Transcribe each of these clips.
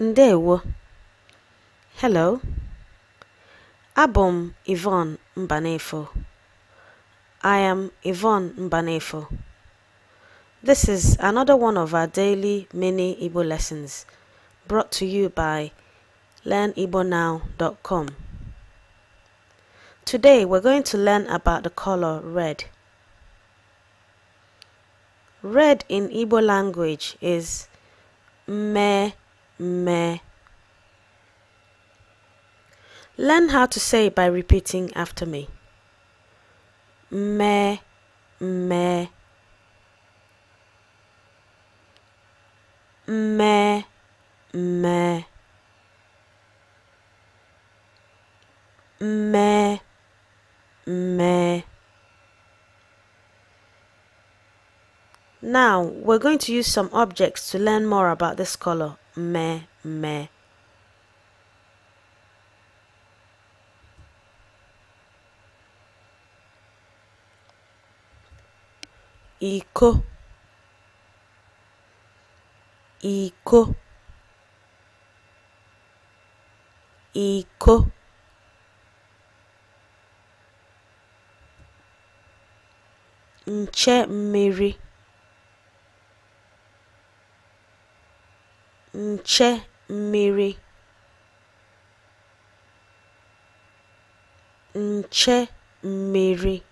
Ndewo. Hello. Abom m Yvonne Mbanefo. I am Yvonne Mbanefo. This is another one of our daily mini Igbo lessons brought to you by learnibonow.com. Today we're going to learn about the color red. Red in Igbo language is me me. Learn how to say it by repeating after me. Me, me, me, me, me, me. Now, we're going to use some objects to learn more about this color me, me. Ico. Ico. Ico. Nche mmiri. nche mmiri nche mmiri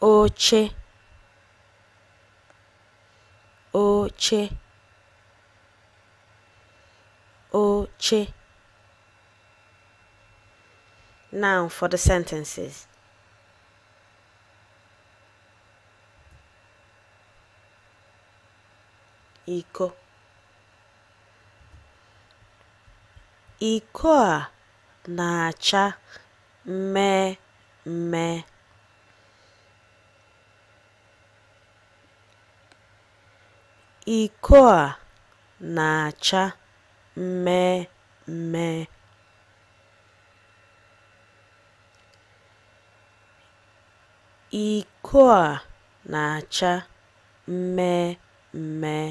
oche oche oche now for the sentences iko iko a na-acha mmee mmee iko a na-acha mmee mmee iko a na-acha mmee mmee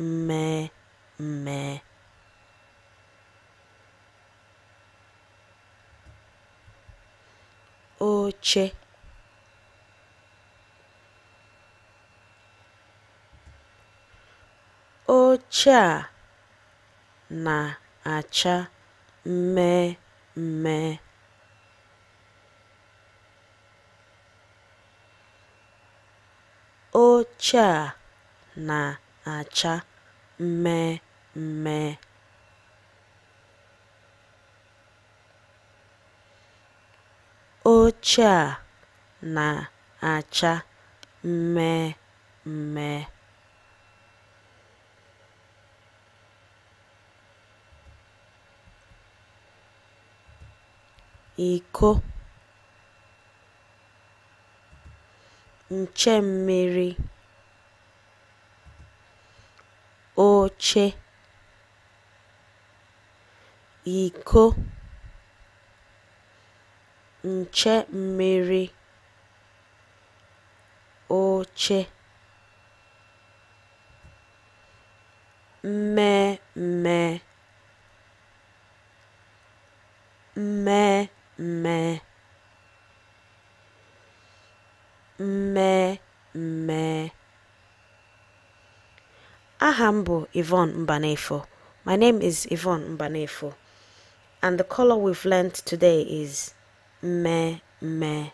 mmee mmee oche oche a na-acha mme. mme oche a na-acha mme mme. oche a na-acha mme mme. iko nche mmiri. oche iko nche mmiri oche me, me, me, me. Aha Yvonne Mbanefo. My name is Yvonne Mbanefo. And the color we've learned today is me me.